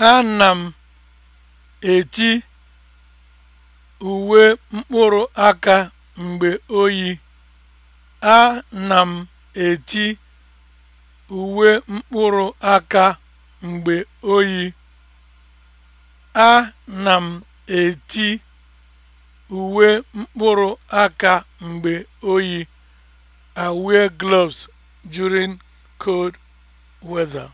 Ana m eti uwe mkpụrụ aka mgbe oyi. a na m eti uwe mkpụrụ aka mgbe oyi. a na m eti uwe mkpụrụ aka mgbe oyi. I wear gloves during cold weather.